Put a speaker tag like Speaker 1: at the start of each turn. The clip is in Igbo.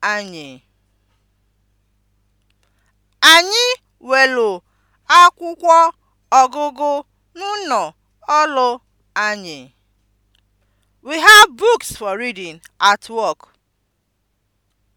Speaker 1: anyị. Anyị welu akwụkwọ ọgụgụ n'ụnọ ọlụ anyị. We have books for reading at work.